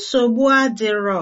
nsogbu adịrọ